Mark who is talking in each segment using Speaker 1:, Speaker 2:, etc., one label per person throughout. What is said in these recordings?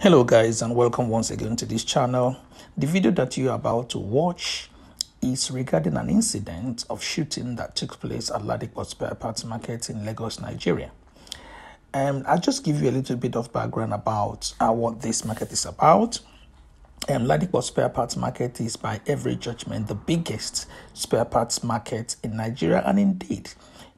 Speaker 1: hello guys and welcome once again to this channel the video that you are about to watch is regarding an incident of shooting that took place at Ladikos Spare Parts Market in Lagos, Nigeria. And um, I'll just give you a little bit of background about uh, what this market is about. Um, Ladikport Spare Parts Market is, by every judgment, the biggest spare parts market in Nigeria and indeed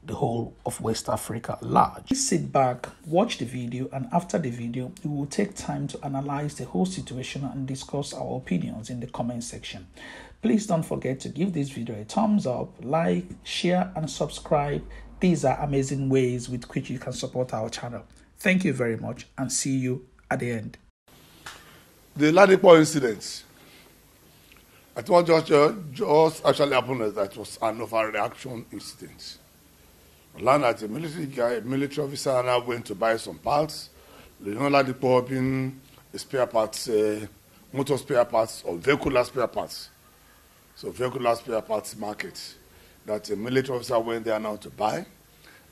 Speaker 1: the whole of West Africa large. Please sit back, watch the video, and after the video, we will take time to analyze the whole situation and discuss our opinions in the comment section. Please don't forget to give this video a thumbs up, like, share, and subscribe. These are amazing ways with which you can support our channel. Thank you very much and see you at the end. The Ladipo incident,
Speaker 2: I thought what just, uh, just actually happened that was an overreaction incident. Land as a military guy, military officer, and I went to buy some parts. the Dipo opened spare parts, uh, motor spare parts, or vehicular spare parts. So vehicular spare parts market that a military officer went there now to buy,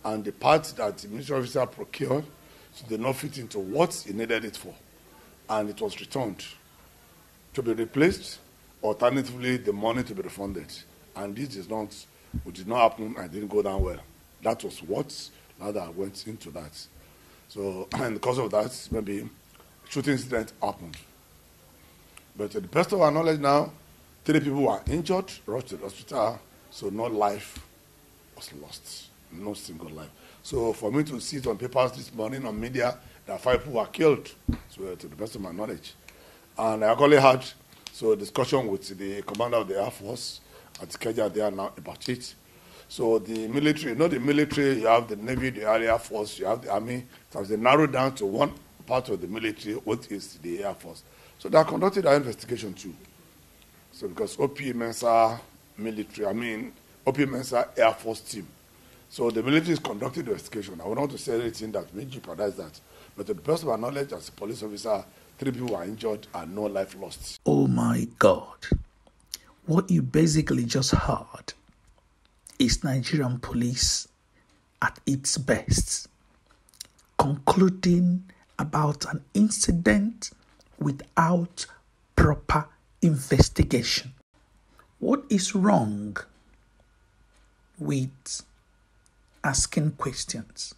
Speaker 2: and the parts that the military officer procured so did not fit into what he needed it for, and it was returned to be replaced. Alternatively, the money to be refunded, and this is not, which did not happen and didn't go down well that was what rather went into that. So, and because of that, maybe shooting incident happened. But to the best of our knowledge now, three people were injured, rushed to the hospital, so no life was lost, no single life. So for me to see it on papers this morning on media that five people were killed, so to the best of my knowledge. And I actually had so discussion with the commander of the Air Force at Kenya there now about it. So the military, not the military, you have the Navy, the Air Force, you have the Army. So they narrowed down to one part of the military, which is the Air Force. So they conducted our investigation too. So because OP Mensa military, I mean, OP Mensa Air Force team. So the military is conducting the investigation. I would not want to say anything that may jeopardize that. But to the best of my knowledge, as a police officer, three people were injured and no life lost. Oh
Speaker 1: my God. What you basically just heard is Nigerian police at its best, concluding about an incident without proper investigation. What is wrong with asking questions?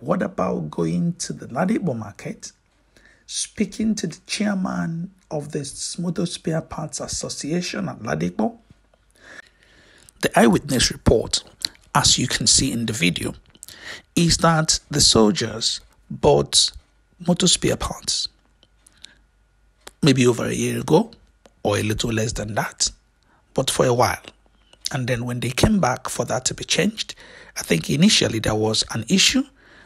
Speaker 1: What about going to the Ladibo market, speaking to the chairman of the Motor Spare Parts Association at Ladipo, the eyewitness report, as you can see in the video, is that the soldiers bought motor spare parts maybe over a year ago or a little less than that, but for a while. And then when they came back for that to be changed, I think initially there was an issue,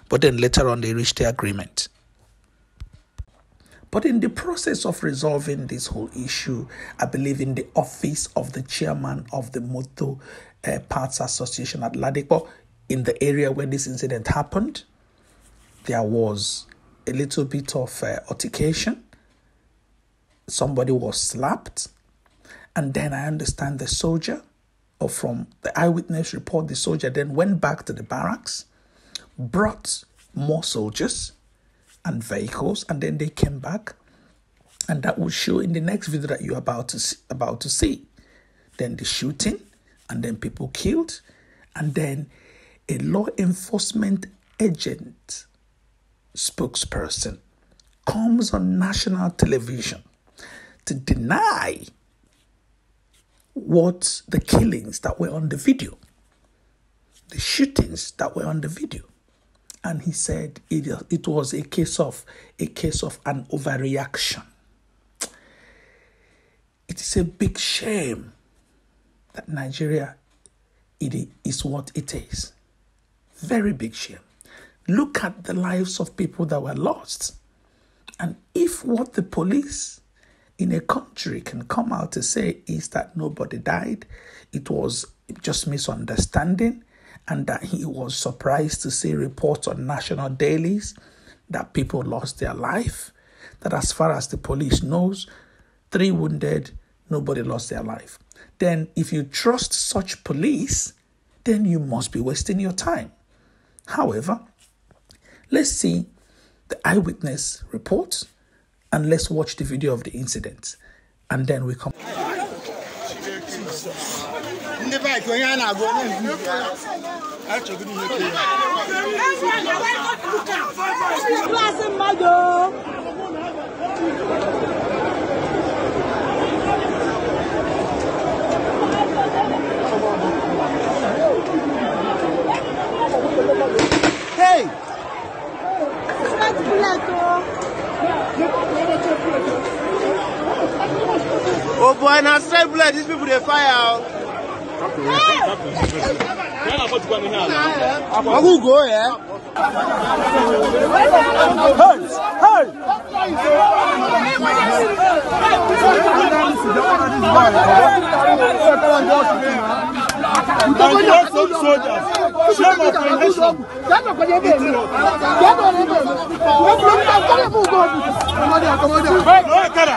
Speaker 1: but then later on they reached the agreement. But in the process of resolving this whole issue, I believe in the office of the chairman of the Moto uh, eh, Parts Association at Ladipo, in the area where this incident happened, there was a little bit of uh, altercation. Somebody was slapped. And then I understand the soldier, or from the eyewitness report, the soldier then went back to the barracks, brought more soldiers and vehicles, and then they came back, and that will show in the next video that you're about to see, about to see. Then the shooting, and then people killed, and then a law enforcement agent spokesperson comes on national television to deny what the killings that were on the video, the shootings that were on the video. And he said it, it was a case of a case of an overreaction. It is a big shame that Nigeria it is what it is. Very big shame. Look at the lives of people that were lost. And if what the police in a country can come out to say is that nobody died, it was just misunderstanding, and that he was surprised to see reports on national dailies that people lost their life, that as far as the police knows, three wounded, nobody lost their life. Then, if you trust such police, then you must be wasting your time. However, let's see the eyewitness report and let's watch the video of the incident and then we come.
Speaker 3: ndị baik onye a na-agụ onye achọgoro klasị mmadụ Hey! Smart plato. Oh boy, now straight blood, these people they fire out. Agugo, yeah. Hey, hey. Nigerian soldiers, shame of the nation. No, Kara.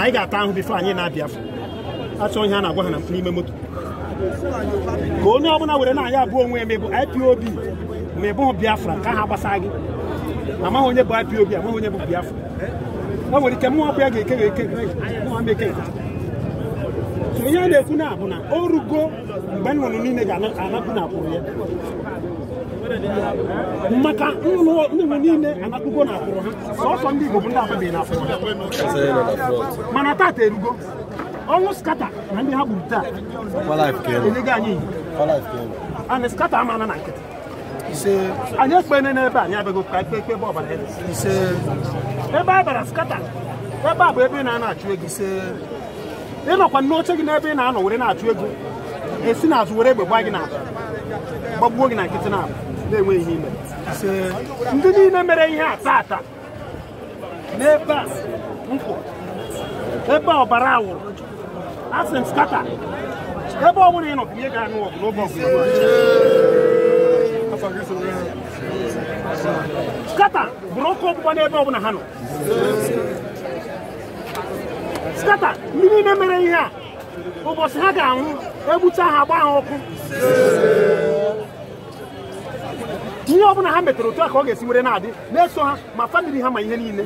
Speaker 3: na anyị ga-ata ahụ bifo anyị na-abịa afọ achọ ihe a na-agwa ha na n'ime moto ka onye ọbụla were na anyị abụọ onwe eme bụ IPOB ma ị bụghị Biafra ka ha gbasa gị amaghị onye bụ IPOB amaghị onye bụ Biafra o nwere ike mụọ ọbụ ya ga-eke ga-eke eke ihe a na-ekwu na bụ na o rugo mgbe nnụnụ niile ga-anapụ na akwụrụ ya maka nnụnụ niile anakpugo na akwụrụ ha sọsọ ndị Igbo bụ ndị ababeghị na akwụrụ mana taata erugo ọnwụ skata na ndị ha gburu taa enyego anyị ana skata amana na nkịtị anyị ekpene n'ebe anyị abịago ka ikpe ebe ọbara ebe a bara skata ebe a bụ ebe ị na-achụ ego ị nọkwa n'oche gị n'ebe ị na-anọ were na-achụ ego esi n'azụ were egbe gbaa gị na gbagbuo gị na nkịtị na-abụ na-enweghị ime ndị niile mere ihe a taa taa n'ebe a nkwụ ebe ọbara awụrụ asị m skata ebe ọ bụla ị nọ ihe ga-anụ ọgụ n'oge ọgụ skata bụrụ ọkụ ọgbụgba n'ebe ọ bụla ha nọ skata ndị niile mere ihe a ụbọchị ha ga-anwụ egbucha ha agba ha ọkụ ihe ọ bụla ha metara otu a ka ọ ga-esi were na-adị na-eso ha ma famili ha ma ihe niile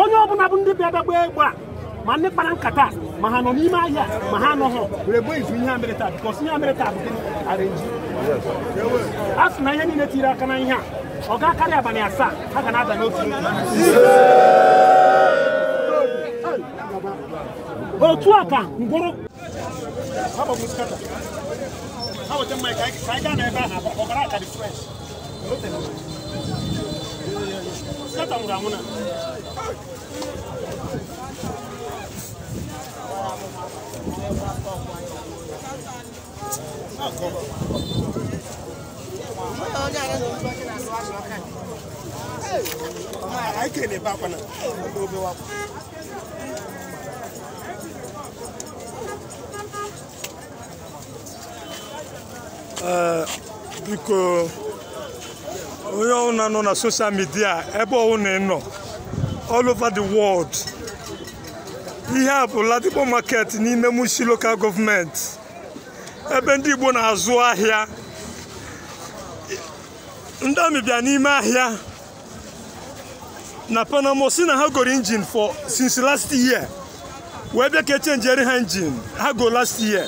Speaker 3: onye ọbụla bụ ndị bịa bịa gbaa egbe ma ndị kpara nkata ma ha nọ n'ime ahịa ma ha anọghọ were gbuo izu ihe mere taa bikọs ihe mere taa bụ gịnị arenji a sị na ihe niile tiri aka na ihe a ọ ga karị abalị asaa ha ga na-ada n'otu otu a ka ngwụrụ hawa can mai kai kai gane ba na ba kokara ka refresh sata mu ramuna Ai ke ne ba kwana, dobe wa.
Speaker 4: Eh, biko onye ọbụla nọ na soshal midia ebe na nọ all over the world ihe a bụ Ladipo market n'ime Mushi local gọọmenti ebe ndị Igbo na-azụ ahịa ndị amị bịa n'ime ahịa na Panama si na ha goro injin for since last year wee bịa ka echenjere ha injin ha go last year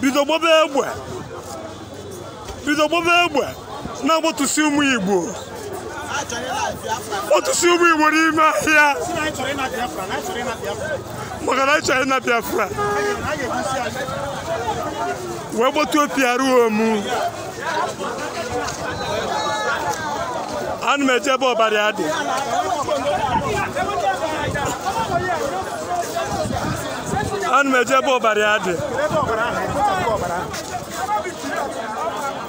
Speaker 4: bido gbobe egbe bido gbaba egbe na-agbatusi ụmụ igbo kpọtụsi ụmụ igbo n'ime ahịa maka na ịchọrọ ịna biafra wee gbatuo piaruom ana m eje ebe ọbara dị ana m eje ebe ọbara dị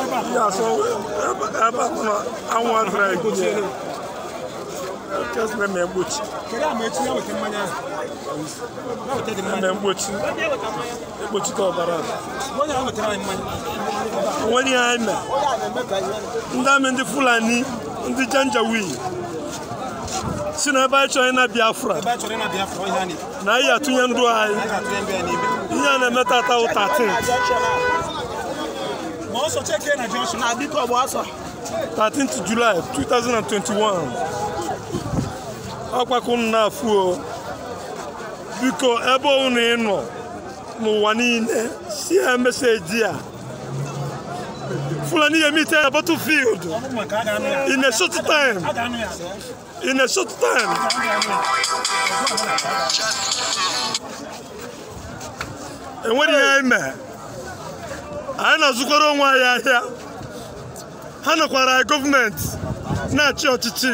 Speaker 3: Yeah, so
Speaker 4: about na I want Just let me go. Kere am etu ya Na wete Ndị amị ndị Fulani, ndị Janjawi. Si na ebe chọrọ ịna Biafra. Na anyị atụnye Ihe na-eme tata ma ọsọ cheke na junction na biko ọgbọ ọsọ 13th July 2021 ọkpakọ m na-afụ o biko ebe unu ịnọ n'ụwa niile si ya meseji a Fulani Yemi tell a battlefield
Speaker 3: in a short time.
Speaker 4: In a short time. And what do you anyị na-azụkwara onwe anyị ahịa ha nọkwara anyị gọọmenti na-achị ọchịchị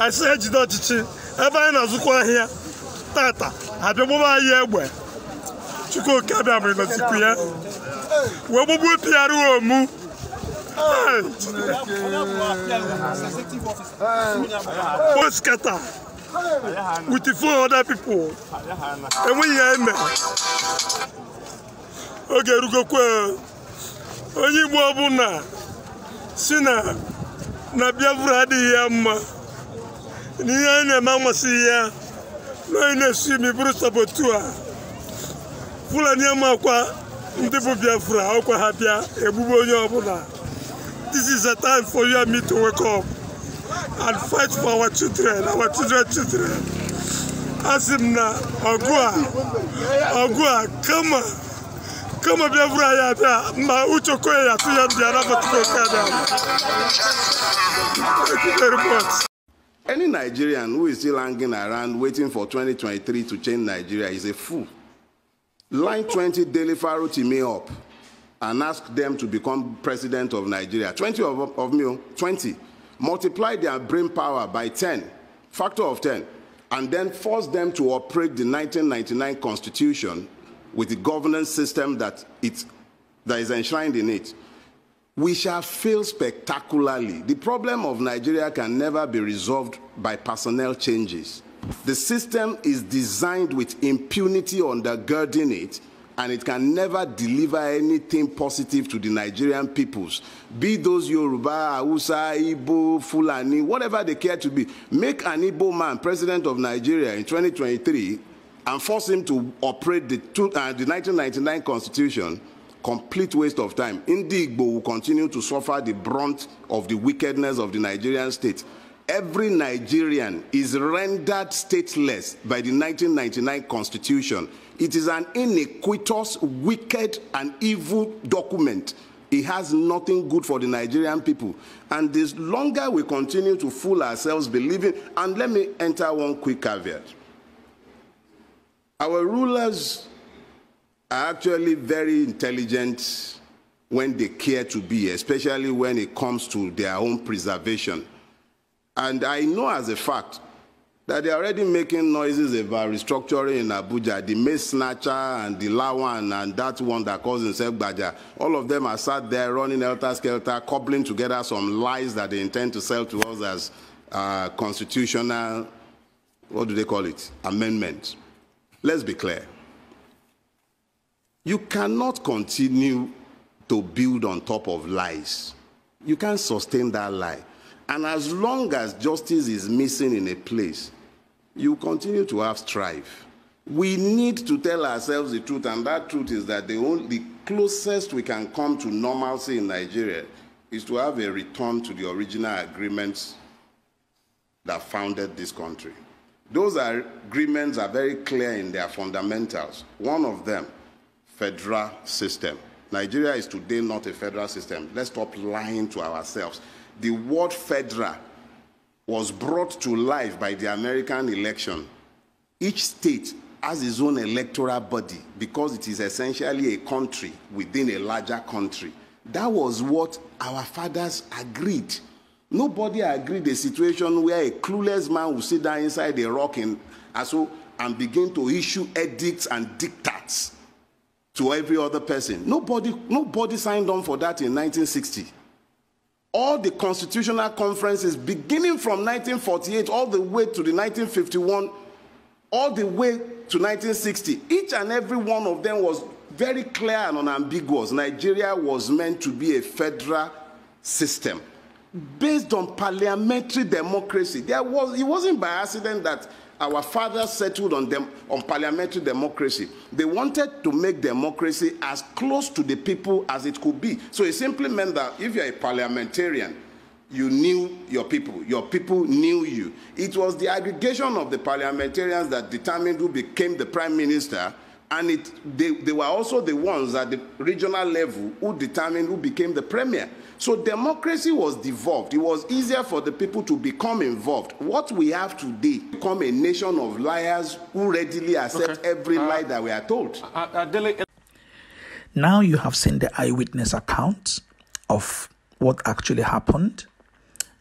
Speaker 4: anyị si ejide ọchịchị ebe anyị na-azụkwa ahịa tata abịa gbụba anyị egbe chukwuoke abịa ma ịnọzikwu ya wee gbugbu pịara omu
Speaker 3: poskata
Speaker 4: with four other people enweghị ya eme oge onye igbo ọbụla si na na biafra adịghị ya mma na ihe anyị na-eme amasịghị ya na anyị na esu imi bụrụ sabotu a fulani amakwa ndị bụ biafra ọkwa ha bịa egbugbe onye ọbụla this is a time for you and me to wake up and fight for our children our children children asị m na ọgụ a ọgụ a kama kama bia ya bia ma ucho kwe ya tu ya bia rafa kada
Speaker 5: Any Nigerian who is still hanging around waiting for 2023 to change Nigeria is a fool. Line 20 Daily Faro me up and ask them to become president of Nigeria. 20 of, of me, 20. Multiply their brain power by 10, factor of 10, and then force them to operate the 1999 constitution with the governance system that, it, that is enshrined in it, we shall fail spectacularly. The problem of Nigeria can never be resolved by personnel changes. The system is designed with impunity undergirding it, and it can never deliver anything positive to the Nigerian peoples, be those Yoruba, Hausa, Igbo, Fulani, whatever they care to be. Make an Igbo man president of Nigeria in 2023 and force him to operate the, two, uh, the 1999 constitution, complete waste of time. Indigbo will continue to suffer the brunt of the wickedness of the Nigerian state. Every Nigerian is rendered stateless by the 1999 constitution. It is an iniquitous, wicked, and evil document. It has nothing good for the Nigerian people. And the longer we continue to fool ourselves believing, and let me enter one quick caveat. Our rulers are actually very intelligent when they care to be, especially when it comes to their own preservation. And I know as a fact that they're already making noises about restructuring in Abuja. The Mace Snatcher and the Lawan and that one that calls himself Baja, all of them are sat there running helter skelter, cobbling together some lies that they intend to sell to us as uh, constitutional, what do they call it, amendments. Let's be clear. You cannot continue to build on top of lies. You can't sustain that lie. And as long as justice is missing in a place, you continue to have strife. We need to tell ourselves the truth, and that truth is that the, only, closest we can come to normalcy in Nigeria is to have a return to the original agreements that founded this country. Those agreements are very clear in their fundamentals. One of them, federal system. Nigeria is today not a federal system. Let's stop lying to ourselves. The word federal was brought to life by the American election. Each state has its own electoral body because it is essentially a country within a larger country. That was what our fathers agreed. Nobody agreed the situation where a clueless man will sit down inside a rock and, so, and begin to issue edicts and dictats to every other person. Nobody, nobody signed on for that in 1960. All the constitutional conferences, beginning from 1948 all the way to the 1951, all the way to 1960, each and every one of them was very clear and unambiguous. Nigeria was meant to be a federal system. based on parliamentary democracy. There was, it wasn't by accident that our fathers settled on, dem, on parliamentary democracy. They wanted to make democracy as close to the people as it could be. So it simply meant that if you're a parliamentarian, you knew your people. Your people knew you. It was the aggregation of the parliamentarians that determined who became the prime minister and it, they, they were also the ones at the regional level who determined who became the premier. So democracy was devolved. It was easier for the people to become involved. What we have today become a nation of liars who readily accept okay. every uh, lie that we are told.
Speaker 1: Uh, uh, uh now you have seen the eyewitness account of what actually happened.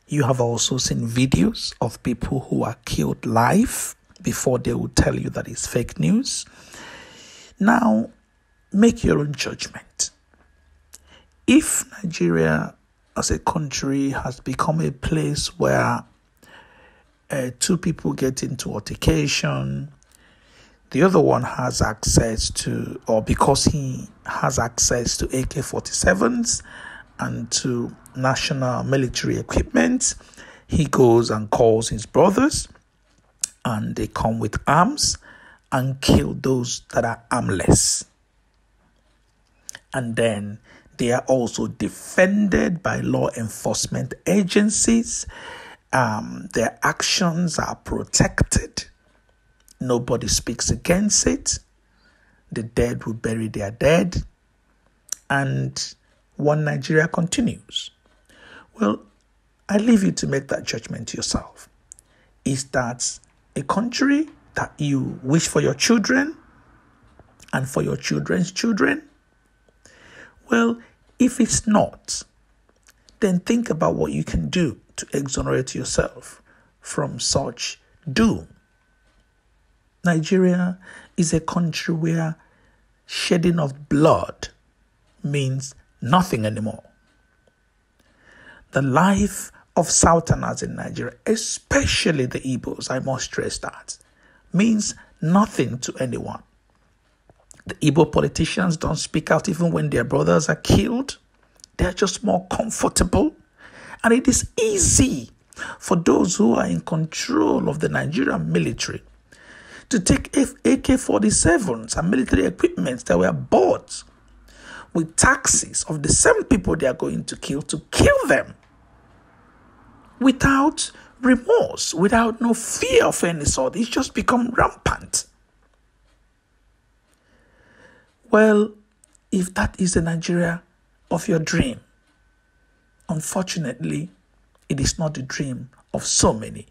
Speaker 1: You have also seen videos of people who are killed live before they will tell you that it's fake news. Now, make your own judgment. If Nigeria as a country has become a place where uh, two people get into altercation, the other one has access to, or because he has access to AK 47s and to national military equipment, he goes and calls his brothers, and they come with arms and kill those that are armless. And then they are also defended by law enforcement agencies. Um, their actions are protected. Nobody speaks against it. The dead will bury their dead. And one Nigeria continues. Well, I leave you to make that judgment yourself. Is that a country that you wish for your children and for your children's children? Well, if it's not, then think about what you can do to exonerate yourself from such doom. Nigeria is a country where shedding of blood means nothing anymore. The life of Southerners in Nigeria, especially the Igbos, I must stress that, means nothing to anyone. The Igbo politicians don't speak out even when their brothers are killed. They're just more comfortable. And it is easy for those who are in control of the Nigerian military to take AK 47s and military equipment that were bought with taxes of the same people they are going to kill to kill them without remorse, without no fear of any sort. It's just become rampant. Well, if that is the Nigeria of your dream, unfortunately, it is not the dream of so many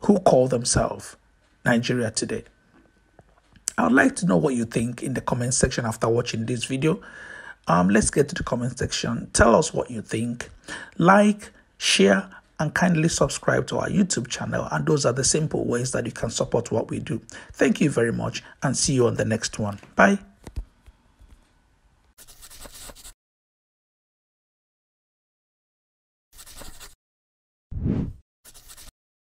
Speaker 1: who call themselves Nigeria today. I would like to know what you think in the comment section after watching this video. Um, let's get to the comment section. Tell us what you think. Like, share, and kindly subscribe to our YouTube channel. And those are the simple ways that you can support what we do. Thank you very much and see you on the next one. Bye.